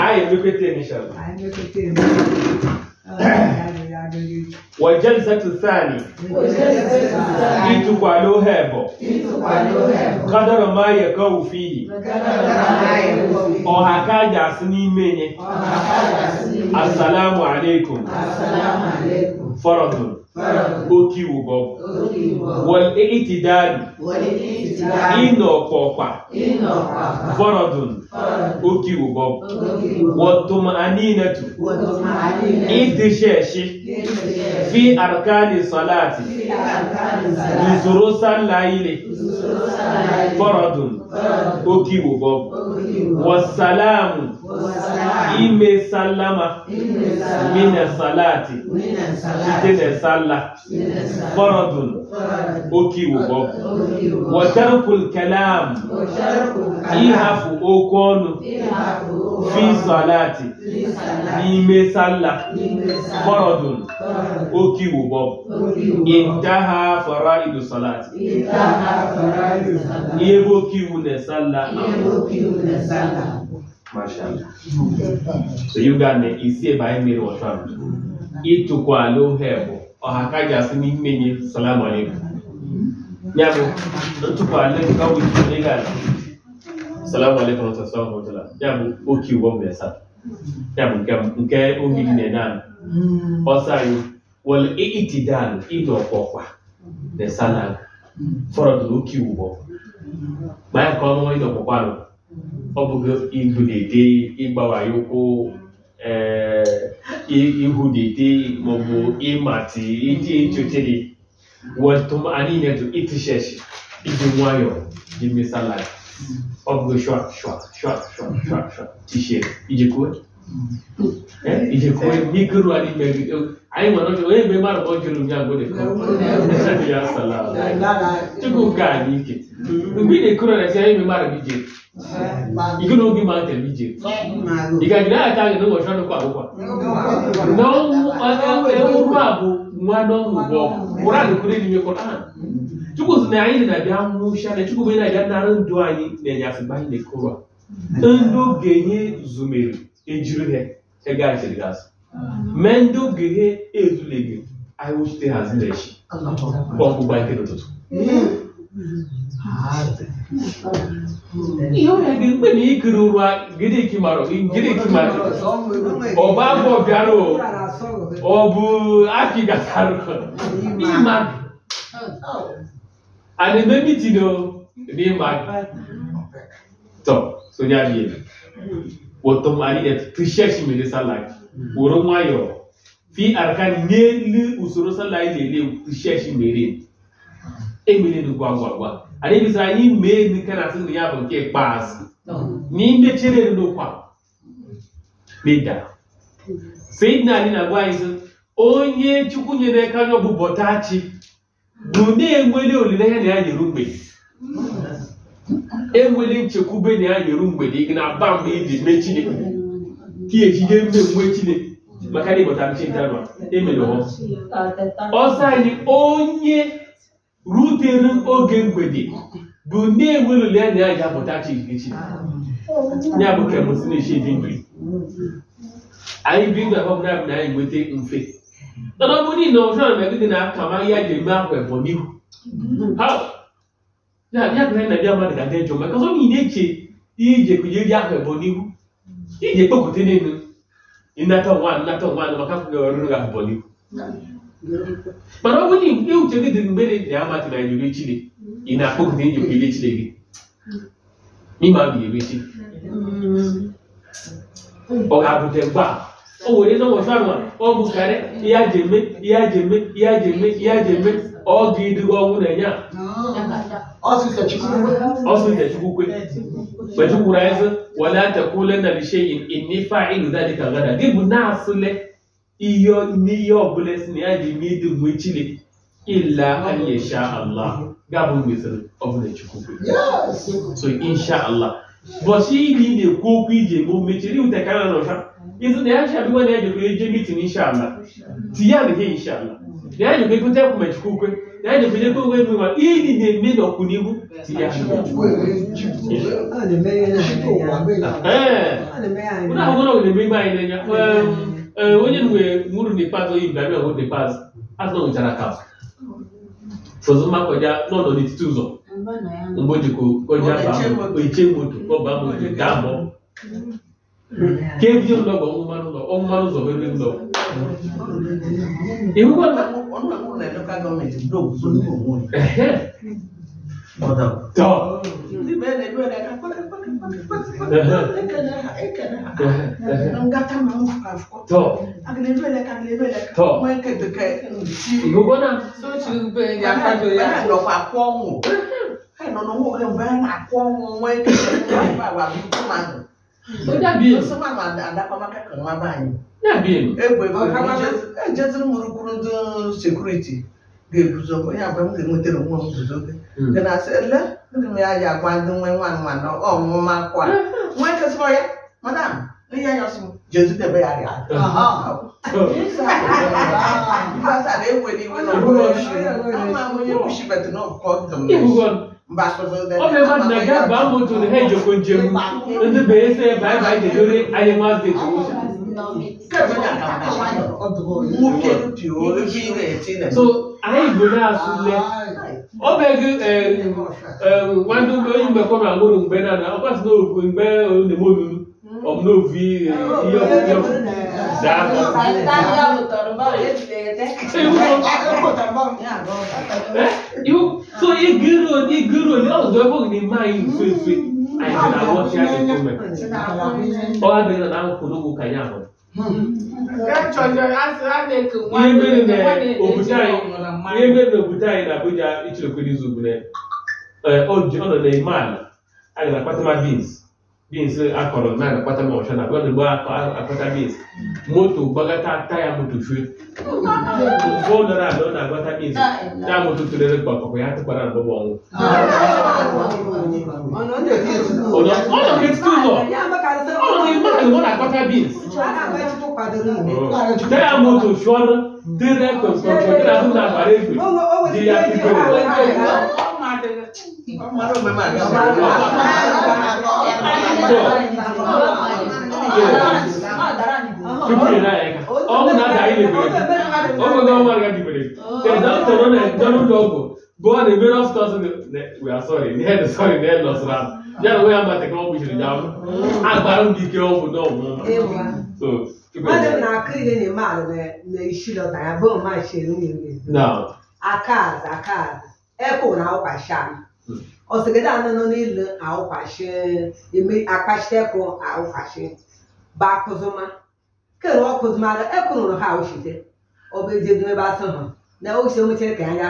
آية بكتين إن شاء الله آية بكتين والجلسة الثانية إتقالوا هبو قدر ما يقو فيه أوهاكا جاسني مني السلام عليكم فرض okiwu gogo wal-i'tidalu ina ọ̀pọ̀pà faradun okiwu gogo wat-tuma'aninatu ìdíṣẹ́ṣe fi arkani salati ìṣòro sálàyé faradun okiwu gogo wasalamu ime sallama mina salati site na salla faradun okiwu bọbụ watarkul ihafu ịhafụ okwu ọnụ fi salati n'ime salla faradun okiwu bọbụ intaha faraidu salati ihe bụ okiwu na salla Mashallah. Mm-hmm. So you got isi ebe anyị mere ọtụ ahụ. Ịtụkwa ala ohe bụ ha ka ji asị n'ime nye salam Ya bụ ntụkwa ala ka wụ ike ga ala. Salam salam Ya bụ oke ụgbọ mgbe sa. Mm-hmm. Ya bụ nke na na salam oke ụgbọ. Gbaa ọbụgo igudete ịgbawa ya ụkwụ eh, ihudete maọbụ ịmati iji echoche gị wọtụm anyị na-eto itisheshi iji nwayọọ ji mesala ọbụgo shwa shwa shwa shwa shwa shwa tishe ijekwuwe ijekwuwe mikuru anyị megide anyị nwere ọjọọ onye mgbe mmadụ ọjọọ ụbịa ngwede ya sala tupu nke a n'ike mgbe ị na-ekuru na-esi anyị mgbe mmadụ bi ike na oge ma atara ije ị ga-agide aka gị n'ụbọchị ọrụ kwa akwụkwọ na ọnwụ a bụ mmadụ ọgwụ ụra nkwere chukwu sị na anyị na-abịa nwụcha na chukwu onye na-abịa nara ndụ anyị na-enye asịba anyị na-ekoro ndị ogenye zumere ejiri ha ego ndị ogenye ezuleghị anyị wụchite ha echi n'ụtụtụ Iyo ya gi mgbe na ikiri ụra gịdị kimara gịdị kimara ọ bụ abụ bịara ọ bụ aki gatara ịma a na-eme mitin o n'ịma tọ sonya bi wọtọ mari et trishesh minisa lak woro nwayọọ fi arka n'elu usoro salayi na-ele trishesh merin emerela gwa gwa gwa anyị bịzara anyị mee nke na asịrị ya bụ nke ikpeazụ n'ime chere n'ụkwa meda sayidina anyị na-agwa anyị sị onye chukwu nyere aka anya ọbụ bọtachi bụ na-enwere olileanya na ya nyeru mgbede enwere nchekwube na ya nyeru mgbede gị na ba mgbe iji mee chineke ka ejide mmemme chineke maka na ịbọta chinta nọ emere ọsọ anyị onye rutere oge mgbede bụ na-enweruli anya ya ga-apụta chi ya bụ kemụsinechi dị mgbe anyị bi na ọbụla bụ na anyị nweta mfe mana ọ bụrụ na ọjọọ na-egide na aka ma ya ga-eme ahụ bụ n'ihu ya na ndị mmadụ ga-adị njọ maka eche ije ahụ n'ihu ije n'elu ịnata nnata maka ọrụ ga mana ọ bụrụ na uche gị dị mgbe na-eji amati na iri chi gị ị na-akpọgide iji iri chi gị ịma bụ iri chi ọ ga-abụte mgbe a o were n'ụbọchị anwa ọ bụkarị ihe aji eme ihe aji eme ihe aji eme ihe aji eme ọ ga-eduga ọnwụ na-enye a ọsịsa chukwukwe mgbe chukwuru anyị sị wala takwulenna lisheyin inni fa'ilu dhalika gada gị bụ na-asụle iyo n'ihe ọbụla si na ya ji mee idu mgbe chile ila anyị insha Allah gabụ wezara ọbụla chukwu so insha Allah bọsi ili na-ekwu okwu ije mgbe mechiri iwute ka na nọcha ịzụ na ya chabiwa na ya jekwere eje mitin insha Allah tinye adị ha insha Allah na ya jekwere ekwute ekwu ma chukwu kwe na ya jekwere ekwe onwe nwe ma ili na-eme n'ọkwụnihu tinye ahụ na-emegbe anyị n'anya wenye nguru ni pazo hii mbabia nguru ni pazo azo nchana kawa sozuma koja nono ni tuzo mboji koja bambo iche mtu ko bambo ni dambo kevyo ndogo omumanu ndo omumanu zo bebe ndo ihuko na onuna kuna ndoka government ndo kuzuni ko mwe ehe moda to ndi bene ndo na kwa kwa kwa kwa kwa kwa kwa kwa kwa kwa to to igogona o dàbí yẹn dàbí yẹn. egbe ejeziri mụrụ kwuru ndị sekuriti ga-eguzo onye agwa m ga-enwetara onwe m guzo gị dị na asị ele ndị m ya ji agwa ndị nwe nwa nwa na ọmụma akwa nwa kesịrị ya madam Jésù tẹ bẹ́ẹ̀ yàrá. Because I didn't wait when I was I'm going to push it, but not call them. Ọbẹ̀ bá dàgá bá mọ̀tò ní ẹ̀jọ̀ kò jẹun ní bẹ̀rẹ̀ sẹ́ báyìí báyìí dè lórí ayé máa dè tó. So ayé ìgbò náà sùn lẹ. Ọbẹ̀ gí wájú oyún gbẹ kọ́nà àgbọ̀dọ̀ gbẹ náà ọkọ̀ àti náà ògbẹ olùdèmọ́ lulu omlovi iyo zabo you so igiro igiro ni ọdọ ẹgbọn ni máa yìí fèfè àìsàn àwọn ṣe àṣekú mẹ ọwọ abẹnú náà kò lóko kàyà mọ. ihe mere na obodo anyị ihe mere na obodo anyị na Abuja ichekwa n'izu bụ na ọ nọ na ime ala a ga na-akpata ma beans beans akọrọ naanị kpata ma ọcha akpata beans moto gbagata taya motofue na-agbata beans moto ya na bọbọ ọnwụ na-akpata beans taya moto na ya Go and the middle of the we are sorry, the head is sorry, the head lost ram ekona au pashana hmm. osigedana no nile au pashe imi akashteko au pashe ba kuzuma kero kuzuma ekona no ha ushite obejedwe ba sana na o se mo che kan ya